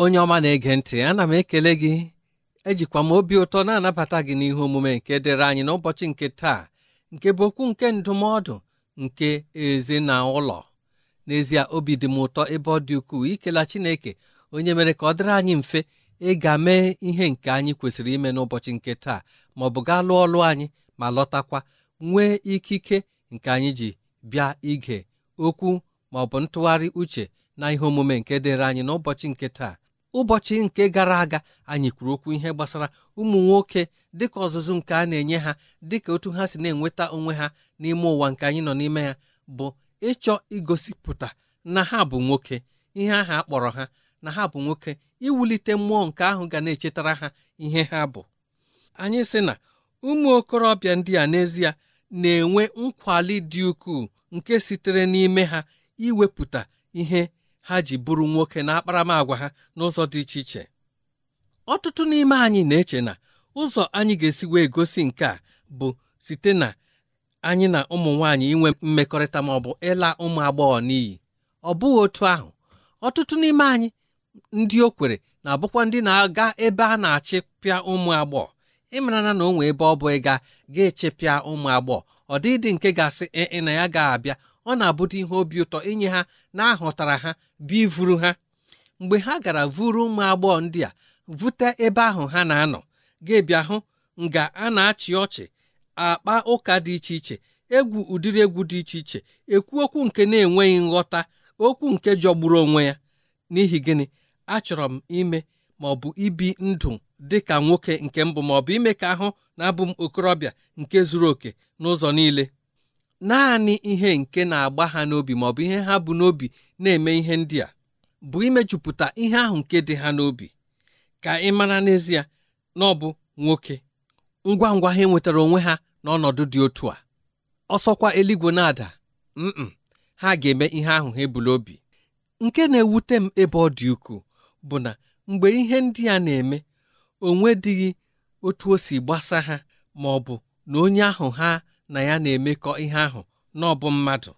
onye ọma na-ege ntị ana m ekele gị ejikwa m obi ụtọ na-anabata gị n'ihe omume nke dịrị anyị n'ụbọchị nke taa nke bụ okwu nke ndụmọdụ nke ezinụlọ n'ezie obi dị m ụtọ ebe ọ dị ukwuu ikela Chineke onye mere ka ọ dịrị anyị mfe ịga mee ihe nke anyị kwesịrị ime n'ụbọchị nke taa ma ọ bụ gaa lụọ ọlụ anyị ma lọtakwa nwee ikike nke anyị ji bịa ige okwu ma ọ bụ ntụgharị uche na ihe omume nke dịrị anyị n'ụbọchị nke taa ụbọchị nke gara aga anyị kwuru okwu ihe gbasara ụmụ nwoke dịka ọzụzụ nke a na-enye ha dịka otu ha si na-enweta onwe ha n'ime ụwa nke anyị nọ n'ime ya bụ ịchọ igosipụta na ha bụ nwoke ihe aha a kpọrọ ha na ha bụ nwoke iwulite mmụọ nke ahụ ga na-echetara ha ihe ha bụ anyị sị na ụmụ okorobịa ndị a n'ezie na-enwe nkwali dị ukwuu nke sitere n'ime ha iwepụta ihe ha ji bụrụ nwoke na akparamagwa ha n'ụzọ dị iche iche ọtụtụ n'ime anyị na-eche na ụzọ anyị ga-esi wee gosi nke a bụ site na anyị na ụmụ nwaanyị inwe mmekọrịta ma ọ bụ ịla ụmụ agbọghọ n'iyi ọ bụghị otu ahụ ọtụtụ n'ime anyị ndị o kwere na-abụkwa ndị na-aga ebe a na-achịpịa ụmụ agbọghọ ịmarana na o nwee ebe ọ bụ ịga ga-echepịa ụmụ agbọghọ ọ dịghị dị nke gasị na ya ga-abịa ọ na-abụta ihe obi ụtọ inye ha na ahọtara ha bi vuru ha mgbe ha gara vuru ụmụ agbọghọ ndị a vute ebe ahụ ha na-anọ ga-ebịa hụ nga a na-achị ọchị akpa ụka dị iche iche egwu ụdịrị egwu dị iche iche ekwu okwu nke na-enweghị nghọta okwu nke jọgburu onwe ya n'ihi gịnị achọrọ m ime ma ọ bụ ibi ndụ dị ka nwoke nke mbụ maọbụ bụ ime ka ahụ na-abụ m okorobịa nke zuru oke n'ụzọ niile naanị ihe nke na-agba ha n'obi maọbụ ihe ha bụ n'obi na-eme ihe ndị a bụ imejupụta ihe ahụ nke dị ha n'obi ka ị mara n'ezie na ọ bụ nwoke ngwa ngwa ha enwetara onwe ha n'ọnọdụ dị otu a ọsọkwa eluigwe na-ada mm ha ga-eme ihe ahụ ha ebula obi nke na-ewute m ebe ọ dị ukwuu bụ na mgbe ihe ndị a na-eme onwe dịghị otu o si gbasa ha ma ọ bụ na onye ahụ ha na ya na-emekọ ihe ahụ n'ọbụ mmadụ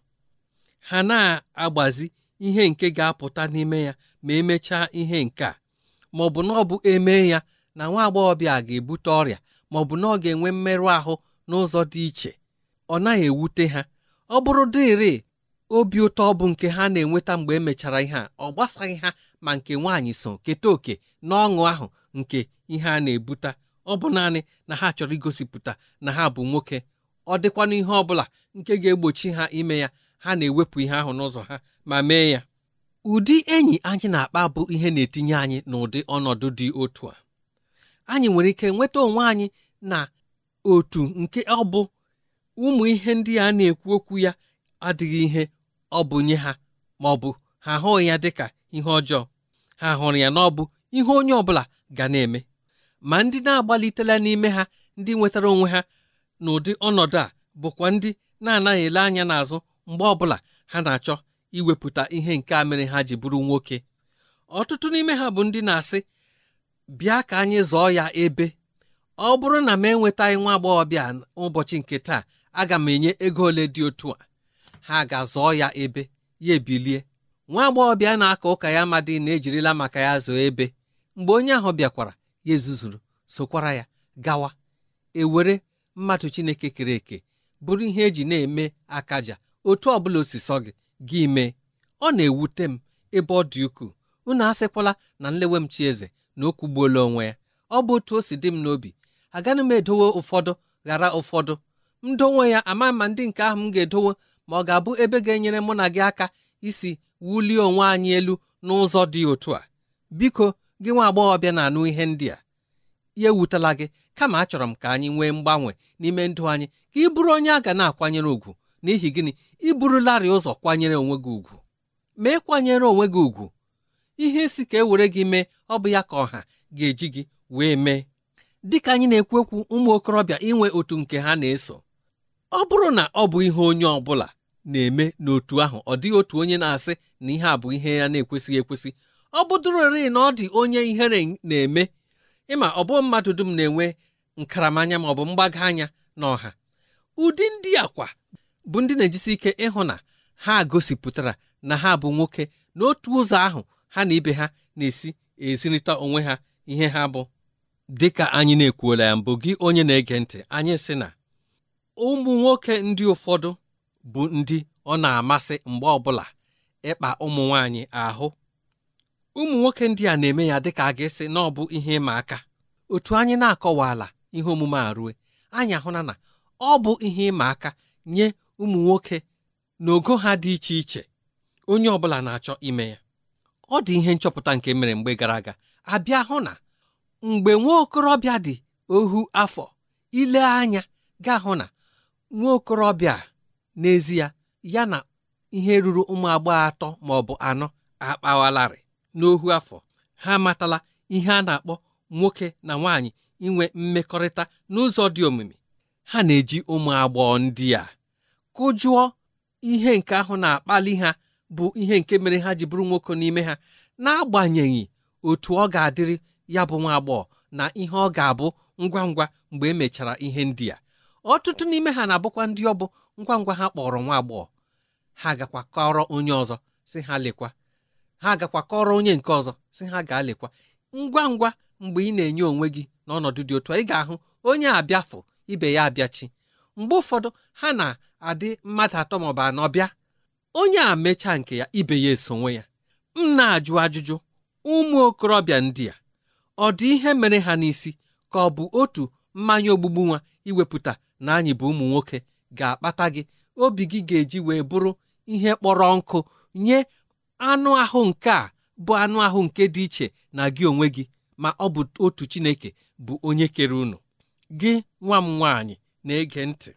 ha na-agbazi ihe nke ga-apụta n'ime ya ma emechaa ihe nke a ma ọ bụ na ọ bụ eme ya na nwa agbọghọbịa ga-ebute ọrịa ma ọ bụ na ọ ga-enwe mmerụ ahụ n'ụzọ dị iche ọ naghị ewute ha ọ bụrụ dịrị obi ụtọ ọ bụ nke ha na-enweta mgbe emechara ihe a ọ gbasaghị ha ma nke nwaanyị so keta oke na ọṅụ ahụ nke ihe a na-ebute ọ bụ naanị na ha chọrọ igosipụta na ha bụ nwoke ọ dịkwanụ ihe ọ bụla nke ga-egbochi ha ime ya ha na-ewepụ ihe ahụ n'ụzọ ha ma mee ya ụdị enyi anyị na-akpa bụ ihe na-etinye anyị n'ụdị ọnọdụ dị otu a anyị nwere ike nweta onwe anyị na otu nke ọ bụ ụmụ ihe ndị a na-ekwu okwu ya adịghị ihe ọ bụ nye ha ma ọ bụ ha hụghị ya dịka ihe ọjọọ ha hụrụ ya na ọ bụ ihe onye ọ bụla ga na-eme ma ndị na-agbalitela n'ime ha ndị nwetara onwe ha n'ụdị ọnọdụ a bụkwa ndị na-anaghị ele anya n'azụ mgbe ọbụla ha na-achọ iwepụta ihe nke a mere ha ji bụrụ nwoke ọtụtụ n'ime ha bụ ndị na-asị bịa ka anyị zọọ ya ebe ọ bụrụ na m enwetaghị nwa agbọghọbịa ụbọchị nke taa aga m enye ego ole dị otu a ha ga-azọọ ya ebe ya ebilie nwa agbọghọbịa na-aka ụka ya amadị na-ejirila maka ya zọọ ebe mgbe onye ahụ bịakwara ya ezuzuru sokwara ya gawa ewere mmadụ chineke kere eke bụrụ ihe eji na-eme akaja otu ọbụla osisọ gị gị mee ọ na-ewute m ebe ọ dị ukwuu unu asịkwala na nlewe m chi eze na okwu gbuola onwe ya ọ bụ otu o si dị m n'obi agaghị m edowe ụfọdụ ghara ụfọdụ m dowe ya ama ma ndị nke ahụ m ga-edowe ma ọ ga-abụ ebe ga-enyere mụ na gị aka isi wulie onwe anyị elu n'ụzọ dị otu a biko gị nwa agbọghọbịa na-anụ ihe ndị a ya ewutela gị kama achọrọ m ka anyị nwee mgbanwe n'ime ndụ anyị ka ị bụrụ onye a ga na-akwanyere ùgwù n'ihi gịnị ị bụrụlarịa ụzọ kwanyere onwe gị ùgwù ma ịkwanyere onwe gị ùgwù ihe si ka e were gị mee ọ bụ ya ka ọha ga-eji gị wee mee dịka anyị na-ekwekwu ụmụ okorobịa inwe otu nke ha na-eso ọ bụrụ na ọ bụ ihe onye ọ bụla na-eme n'otu ahụ ọ dịghị otu onye na-asị na ihe a bụ ihe ya na-ekwesịghị ekwesị ọ bụdụrorị na ọ dị onye ihere na-eme ịma ọ bụ mmadụ dum na-enwe nkaramanya ma ọ bụ mgbago anya na ọha ụdị ndị akwa bụ ndị na-ejisi ike ịhụ na ha gosipụtara na ha bụ nwoke n'otu ụzọ ahụ ha na ibe ha na-esi ezirịta onwe ha ihe ha bụ dịka anyị na-ekwuola ya mbụ gị onye na-ege ntị anyị sị na ụmụ nwoke ndị ụfọdụ bụ ndị ọ na-amasị mgbe ọbụla ịkpa ụmụ nwaanyị ahụ ụmụ nwoke ndị a na-eme ya dịka a ga-esi na ọ bụ ihe ịma aka otu anyị na-akọwala ihe omume a rue anyị ahụla na ọ bụ ihe ịma aka nye ụmụ nwoke na ogo ha dị iche iche onye ọ bụla na-achọ ime ya ọ dị ihe nchọpụta nke mere mgbe gara aga abịa hụ na mgbe nwa okorobịa dị ohu afọ ile anya gaa hụ na nwa okorobịa n'ezie ya na ihe ruru ụmụ agbọghọ atọ maọbụ bụ anọ akpawalarị n'ohu afọ ha amatala ihe a na-akpọ nwoke na nwaanyị inwe mmekọrịta n'ụzọ dị omimi ha na-eji ụmụ agbọghọ ndị a kụjụọ ihe nke ahụ na-akpali ha bụ ihe nke mere ha ji bụrụ nwoke n'ime ha n'agbanyeghị otu ọ ga-adịrị ya bụ nwa agbọghọ na ihe ọ ga-abụ ngwa ngwa mgbe emechara ihe ndị a ọtụtụ n'ime ha na-abụkwa ndị ọ bụ ngwa ngwa ha kpọrọ nwa agbọghọ ha gakwa kọrọ onye ọzọ si ha lekwa ha gakwa kọrọ onye nke ọzọ si ha gaa lekwa ngwa ngwa mgbe ị na-enye onwe gị n'ọnọdụ dị otu a ị ga-ahụ onye abịafụ ibe ya abịachi mgbe ụfọdụ ha na-adị mmadụ atọ maọbụ anọ bịa onye a mechaa nke ya ibe ya esonwe ya m na-ajụ ajụjụ ụmụ okorobịa ndị a ọ dị ihe mere ha n'isi ka ọ bụ otu mmanya ogbugbu nwa iwepụta na anyị bụ ụmụ nwoke ga-akpata gị obi gị ga-eji wee bụrụ ihe kpọrọ nkụ nye anụ ahụ nke a bụ anụ ahụ nke dị iche na gị onwe gị ma ọ bụ otu Chineke bụ onye kere unu gị nwa m nwaanyị na-ege ntị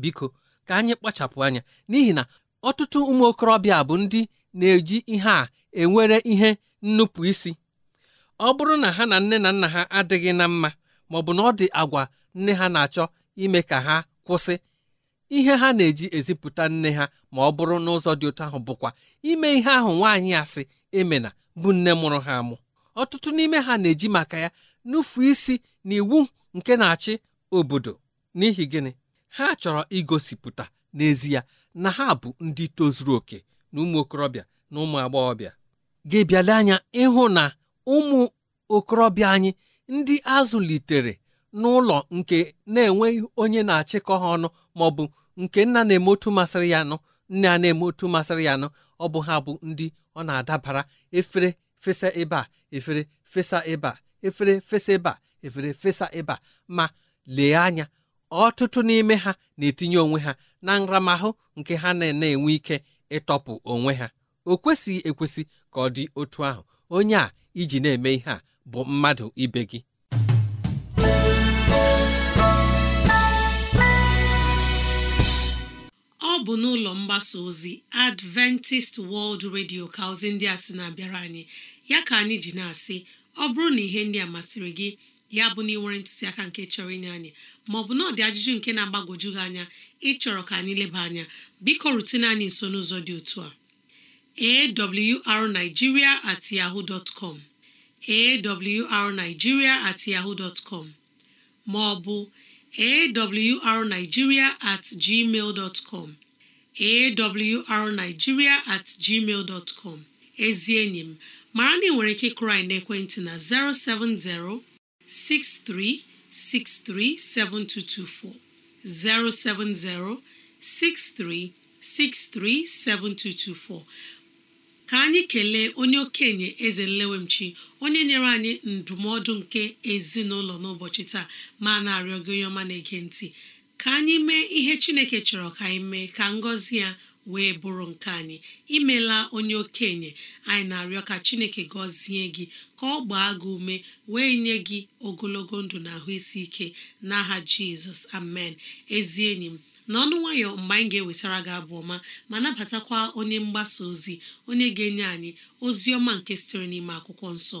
biko ka anyị kpachapụ anya n'ihi na ọtụtụ ụmụ okorobịa bụ ndị na-eji ihe a enwere ihe nnupụ isi ọ bụrụ na ha na nne na nna ha adịghị na mma ma na ọ dị agwa nne ha na-achọ ime ka ha kwụsị ihe ha na-eji ezipụta nne ha ma ọ bụrụ n'ụzọ dị ụtọ ahụ bụkwa ime ihe ahụ nwaanyị asị emena bụ nne mụrụ ha amụ ọtụtụ n'ime ha na-eji maka ya n'ufu isi na iwu nke na-achị obodo n'ihi gịnị ha chọrọ igosipụta n'ezi n'ezie na ha bụ ndị tozuru oke na ụmụ okorobịa na ụmụ agbọghọbịa ga anya ịhụ na ụmụ okorobịa anyị ndị azụlitere n'ụlọ nke na-enweghị onye na-achịkọ ha ọnụ maọbụ nke nna na-eme otu masịrị ya nụ nne a na-eme otu masịrị ya anọ ọ bụ ha bụ ndị ọ na-adabara efere fesa ịba a efere fesa ịba efere fesa ịba efere fesa ịba ma lee anya ọtụtụ n'ime ha na-etinye onwe ha na nramahụ nke ha na-enwe ike ịtọpụ onwe ha o kwesịghị ekwesị ka ọ dị otu ahụ onye a iji na-eme ihe a bụ mmadụ ibe gị bụ n'ụlọ mgbasa ozi Adventist World Radio ka ozi ndị a sị na-abịara anyị ya ka anyị ji na-asị ọ bụrụ na ihe ndị a masịrị gị ya bụ na ị nwere ntụziaka nke chọrọ inye anyị maọbụ na ọ ajụjụ nke na-agbagwoju gị anya ịchọrọ ka anyị leba anya biko rutene anyị nso n'ụzọ dị otu a awrnigeria at yahoo dot com awrnigeria at yahoo dot com maọbụ awrnigeria at gmail dot com awrnigeria at gmail dot com ezi enyi m mara na ị nwere ike ịkụrụ anyị n'ekwentị na 070 6363 7224 070 6363 7224 ka anyị kelee onye okenye eze mchi onye nyere anyị ndụmọdụ nke ezinụlọ n'ụbọchị taa ma na-arịọ gị onye ọma na-ege ntị ka anyị mee ihe chineke chọrọ ka anyị mee ka ngọzi ya wee bụrụ nke anyị imela onye okenye anyị na-arịọ ka chineke gọzie gị ka ọ gbaa gị ume wee nye gị ogologo ndụ na ahụ isi ike n'aha jizọs amen ezi enyi m n'ọnụ nwayọ mgbe anyị ga-ewetara gị abụ ọma ma nabatakwa onye mgbasa ozi onye ga-enye anyị ozi ọma nke sitere n'ime akwụkwọ nsọ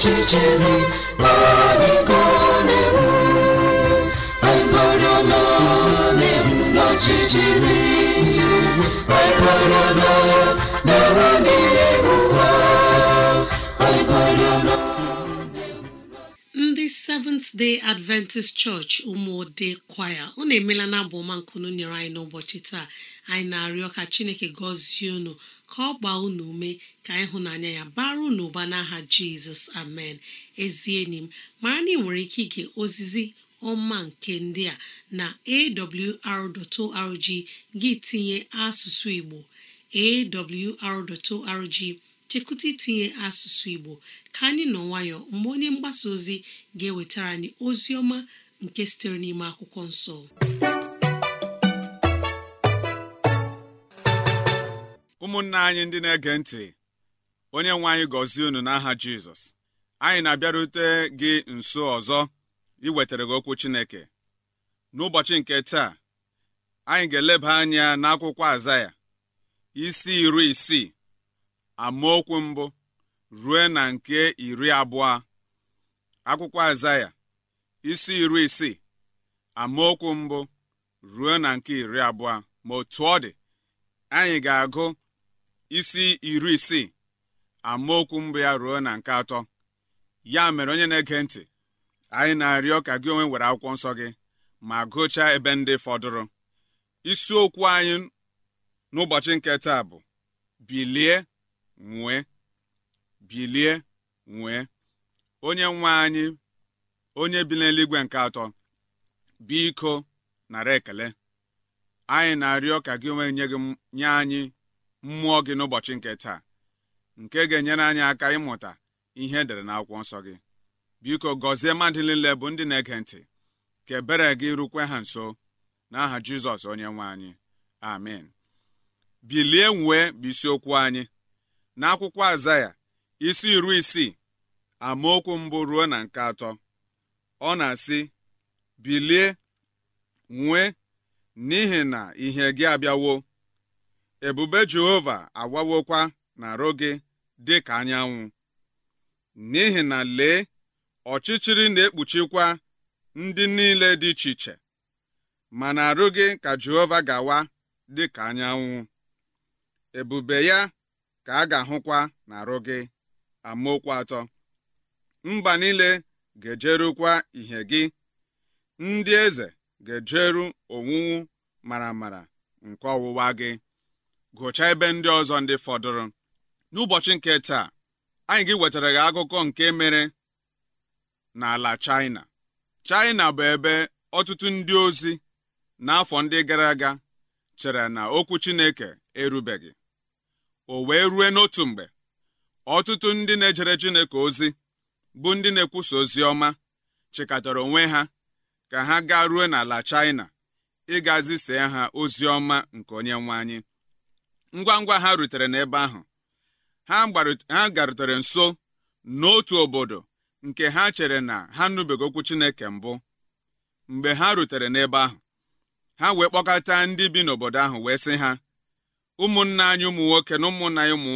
echicheri ndị Seventh Day Adventist Church ụmụode kwaya unu emela na abụ ọma nkunu nyere anyị n'ụbọchị taa anyị na-arịọ ka Chineke gọzie unu ka ọ gbaa unu ume ka ịhụnanya ya bara unu ụba n'aha jizọs amen ezi enyi m mara na ị nwere ike ige ozizi ọma nke ndị a na awr.org gị tinye asụsụ igbo awr.org chekụta itinye asụsụ igbo ka anyị nọ nwayọ mgbe onye mgbasa ozi ga-ewetara anyị ozi ọma nke sitere n'ime akwụkwọ nsọ ụmụnna anyị ndị na-ege ntị onye nwe anyị gọzie unu n'aha jizọs anyị na-abịarute gị nso ọzọ iwetara gị okwu chineke n'ụbọchị nke taa anyị ga-eleba anya n'akwụkwọ azaya isi iri isii amaokwu mbụ ruo na nke iri abụọ akwụkwọ azaya isi iri isii amaokwu mbụ ruo na nke iri abụọ ma otu ọ dị anyị ga-agụ isi iri isii amaokwu mbụ ya ruo na nke atọ ya mere onye na-ege ntị anyị na-arịọ ka gị onwe were akwụkwọ nsọ gị ma gụchaa ebe ndị fọdụrụ isiokwu anyị n'ụbọchị nke taa bụ bilie nwee bilie onye nwe anyị onye bi n'eluigwe nke atọ biko nara ekele anyị na-arịọ ka gị onwe nye anyị mmụọ gị n'ụbọchị nke taa nke ga-enyere anyị aka ịmụta ihe edere n'akwụkwọ nsọ gị biko gọzie mmadụ niile bụ ndị na-ege ntị ka ebere gị rukwe ha nso n'aha Jizọs onye nwe anyị amen bilie nwee bụ isiokwu anyị n'akwụkwọ Azaya isi iru isii amaokwu mbụ ruo na nke atọ ọ na-asị bilie nwee n'ihi na ihe gị abịawo ebube Jehova awawokwa arụ gị dị ka anyanwụ n'ihi na lee ọchịchịrị na-ekpuchikwa ndị niile dị iche iche ma arụ gị ka Jehova ga-awa dị ka anyanwụ ebube ya ka a ga-ahụkwa na arụ gị amaokwu atọ mba niile ga-ejerukwa ìhè gị ndị eze ga-ejeru owuwu mara mara nke ọwụwa gị gụchaa ebe ndị ọzọ ndị fọdụrụ n'ụbọchị nke taa anyị gị wetara gị akụkọ nke mere n'ala China China bụ ebe ọtụtụ ndị ozi n'afọ ndị gara aga chere na okwu Chineke erubeghị o wee rue n'otu mgbe ọtụtụ ndị na-ejere Chineke ozi bụ ndị na-ekwusa ozi ọma chịkọtara onwe ha ka ha gaa rue n'ala China ịgazi see ha ozi ọma nke onye nwe anyị ngwa ngwa ha rutere n'ebe ahụ ha garutere nso n'otu obodo nke ha chere na ha nụbeghị okwu Chineke mbụ mgbe ha rutere n'ebe ahụ ha wee kpọkọta ndị bi n'obodo ahụ wee sị ha ụmụnna anyị ụmụ nwoke na ụmụnna anyị ụmụ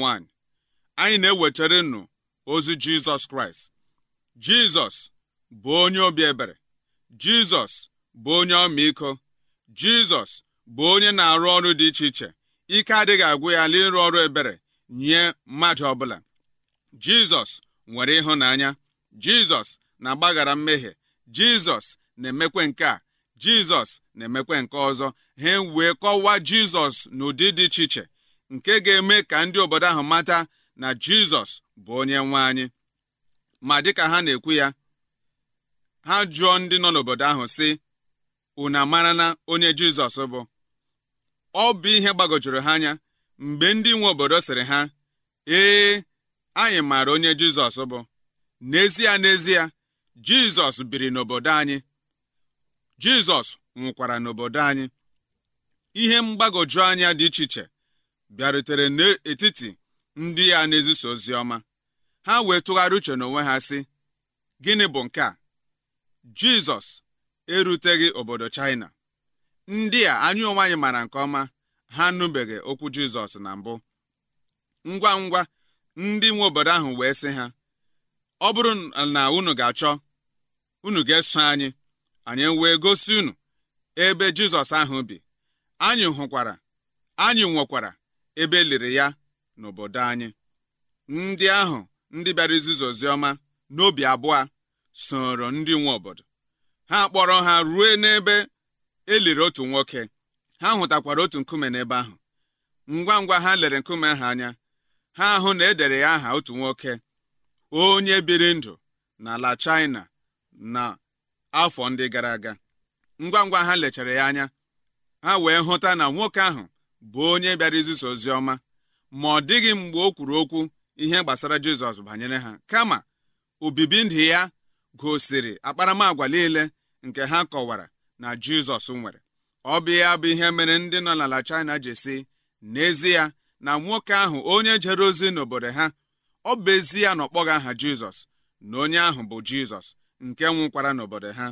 anyị na-ewechere unu ozu Jizọs Kraịst Jizọs bụ onye obi ebere Jizọs bụ onye ọmaiko Jizọs bụ onye na-arụ ọrụ dị iche iche ike adịghị agwụ ya n'ịrụ ọrụ ebere nye mmadụ ọbụla jizọs nwere ịhụnanya jizọs na-agbaghara mmehie jizọs na-emekwe nke a jizọs na-emekwe nke ọzọ ha wee kọwaa jizọs n'ụdị dị iche iche nke ga-eme ka ndị obodo ahụ mata na jizọs bụ onye nwe anyị ma dịka ha na-ekwu ya ha jụọ ndị nọ n'obodo ahụ sị unu amara na onye jizọs bụ ọ bụ ihe gbagojuru ha anya mgbe ndị nwe obodo sịrị ha ee anyị maara onye Jizọs bụ n'ezie n'ezie Jizọs biri n'obodo anyị Jizọs nwụkwara n'obodo anyị ihe mgbagọjuru anya dị iche iche bịarutere n'etiti ndị ya na-ezisa ozi ọma ha wee tụgharị uche n'onwe ha sị gịnị bụ nke a Jizọs eruteghị obodo China ndị a anyị onwe anyị mara nke ọma ha nụbeghị okwu Jizọs na mbụ ngwa ngwa ndị nwe obodo ahụ wee sị ha ọ bụrụ na unu ga-achọ unu ga-eso anyị anyị wee gosi unu ebe Jizọs ahụ bi anyị hụkwara anyị nwekwara ebe eliri liri ya n'obodo anyị ndị ahụ ndị bịara izizi ọma n'obi abụọ soro ndị nwe obodo ha kpọrọ ha rue n'ebe e liri otu nwoke ha hụtakwara otu nkume n'ebe ahụ ngwa ngwa ha lere nkume ahụ anya ha ahụ na edere ya aha otu nwoke onye biri ndụ n'ala China na afọ ndị gara aga ngwa ngwa ha lechara ya anya ha wee hụta na nwoke ahụ bụ onye bịara izizi ozi ọma ma ọ dịghị mgbe o kwuru okwu ihe gbasara Jizọs banyere ha kama obibi ndụ ya gosiri akparamagwa niile nke ha kọwara na jizọs nwere ọ bụ ya bụ ihe mere ndị nọ n'ala china ji si n'ezie na nwoke ahụ onye jere ozi n'obodo ha ọ bụ ezi ya na ọkpọghị aha jizọs na onye ahụ bụ jizọs nke nwụkwara n'obodo ha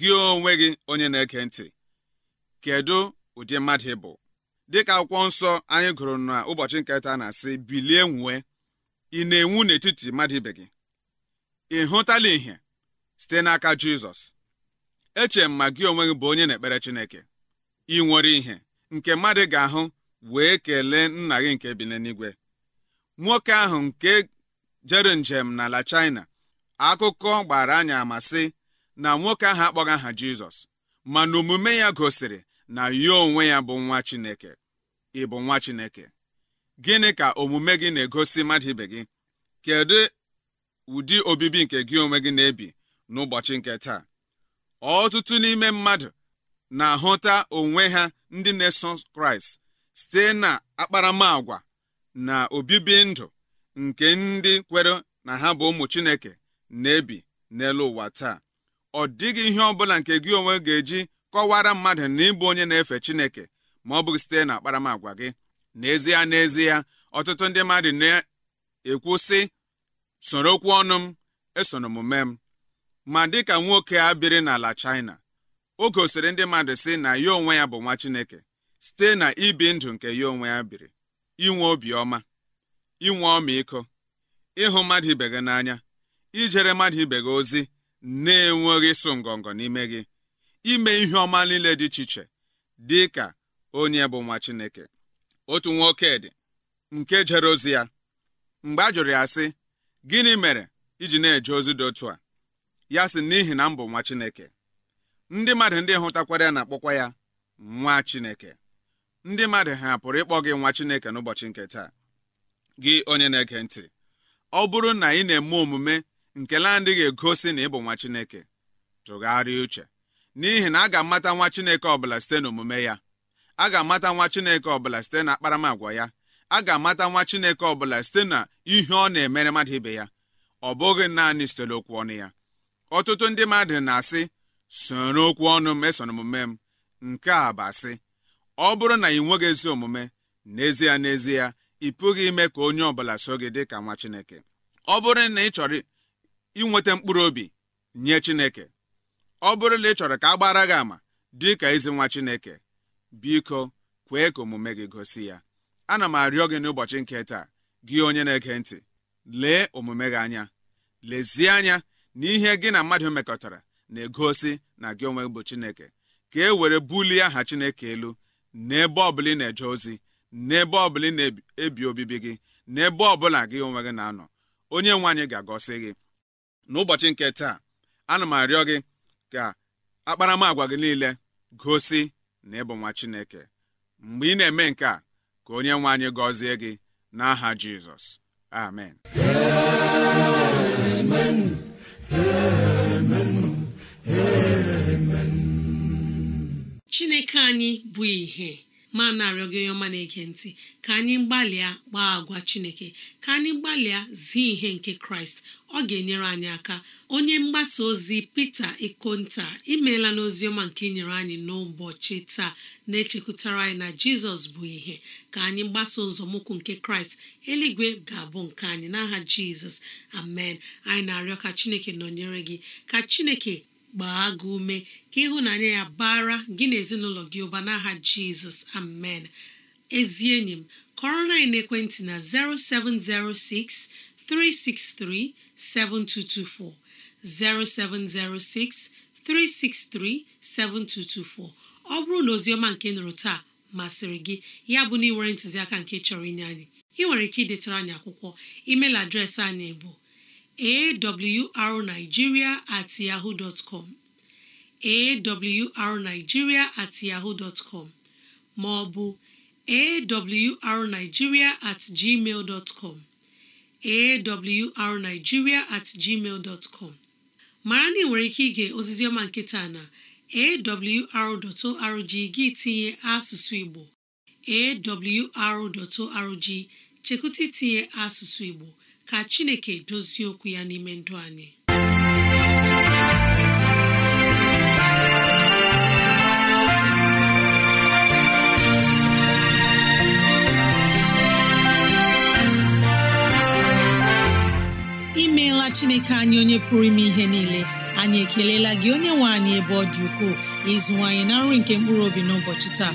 gị onwe gị onye na-eke ntị kedu ụdị mmadụ ị bụ dịka akwụkwọ nsọ anyị gụrụ na ụbọchị nketa na-asị bilie nwue ị na-enwu n'etiti mmadụ ibe gị ị hụtala ìhè site n'aka Jizọs eche m ma gị onwe gị bụ onye na-ekpere Chineke ị nwere ìhè nke mmadụ ga-ahụ wee kelee nna gị nke bi n'eluigwe nwoke ahụ nke jere njem n'ala China akụkọ gbara anyị amasị sị na nwoke ahụ akpọghị aha Jizọs mana omume ya gosiri na ya onwe ya bụ nwa Chineke ị bụ nwa Chineke gịnị ka omume gị na-egosi mmadụ ibe gị kedu ụdị obibi nke gị onwe gị na-ebi n'ụbọchị nke taa ọtụtụ n'ime mmadụ na-ahụta onwe ha ndị na-eso Kraịst site na akparamagwa na obibi ndụ nke ndị kwere na ha bụ ụmụ Chineke na-ebi n'elu ụwa taa ọ dịghị ihe ọbụla nke gị onwe ga-eji kọwara mmadụ na ịbụ onye na-efe Chineke ma ọ bụghị site na akparamagwa gị n'ezie n'ezie ọtụtụ ndị mmadụ na-ekwu sị soro okwu ọnụ m esoro omume m ma dịka nwoke a biri n'ala China o gosiri ndị mmadụ sị na ya onwe ya bụ nwa Chineke site na ibi ndụ nke ya onwe ya biri inwe obiọma inwe ọmịiko ịhụ mmadụ ibe gị n'anya ijere mmadụ ibe gị ozi na-enweghị ịsụ ngọngọ n'ime gị ime ihe ọma niile dị iche iche dị ka onye bụ nwa Chineke otu nwoke dị nke jere ozi ya mgbe a jụrụ ya sị gịnị mere iji na-eje ozi dị otu a ya sị n'ihi na m bụ nwa Chineke ndị mmadụ ndị hụtakwara ya na-akpọkwa ya nwa Chineke ndị mmadụ ha pụrụ ịkpọ gị nwa Chineke n'ụbọchị nke taa gị onye na-ege ntị ọ bụrụ na ị na-eme omume nkela ndị ga-egosi na ịbụ nwa Chineke tụgharịa uche n'ihi na a ga-amata nwa Chineke ọbụla site n'omume ya a ga-amata nwa Chineke ọbụla site na akparamagwa ya a ga-amata nwa Chineke ọbụla site na ihe ọ na-emere mmadụ ibe ya ọ bụghị naanị site n'okwu ọnụ ya ọtụtụ ndị mmadụ na-asị soro okwu ọnụ m eso n'omume m nke a bụ asị ọ bụrụ na ị nweghị ezi omume n'ezie n'ezie ị pụghị ime ka onye ọbụla so gị dị ka nwa Chineke ọ bụrụ na ị chọrọ inweta mkpụrụ obi nye Chineke ọ bụrụ na ị chọrọ ka a gbara gị ama dị ka ezi nwa Chineke biko kwee ka omume gị gosi ya ana m arịọ gị n'ụbọchị nke taa gị onye na-ege ntị lee omume gị anya lezie anya na ihe gị na mmadụ mekọtara na-egosi na gị onwe bụ Chineke ka e were bulie aha Chineke elu n'ebe ọbụla ị na-eje ozi n'ebe bụla ị na-ebi obibi gị n'ebe ọbụla gị onwe gị na-anọ onye nwe anyị ga agosi gị n'ụbọchị nke taa ana m arịọ gị ka akparamagwa gị niile gosi na ịbụ nwa Chineke mgbe ị na-eme nke a ka onye nwe anyị gọzie gị n'aha Jizọs amen amen Chineke anyị bụ ihe ma na-arịọ gị onye ọma na-ege ntị ka anyị gbalịa gbaa agwa Chineke ka anyị gbalịa zi ihe nke Kraịst ọ ga-enyere anyị aka onye mgbasa ozi Pita Ikonta imeela n'ozi ọma nke inyere anyị n'ụbọchị taa na-echekwutara anyị na Jizọs bụ ihe ka anyị gbasa nzọmụkwụ nke Kraịst eluigwe ga-abụ nke anyị n'aha Jizọs amen anyị na-arịọ ka Chineke nọnyere gị ka Chineke gbaa gị ume ka ịhụnanya ya bara gị na ezinụlọ gị ụba n'aha jizọs amen ezi enyi m kọrọ na ekwentị na 0706 363 7224 0706 363 7224 ọ bụrụ na ozioma nke nụrụ taa masịrị gị ya bụ na ị nwere ntụziaka nke chọrọ inye anyị ị nwere ike idetara anyị akwụkwọ email adreesị anyị bụ awrnigeria at yahoo dot com at ma at gmail at gmail mara na ị nwere ike ige ozizi ọma nkịta na awr.org gị tinye asụsụ Igbo awr.org chekụta itinye asụsụ Igbo ka chineke dozie okwu ya n'ime ndụ anyị imeela chineke anyị onye pụrụ ime ihe niile anyị ekelela gị onye nwe anyị ebe ọ dị ukwuu ịzụwanyị na nri nke mkpụrụ obi n'ụbọchị taa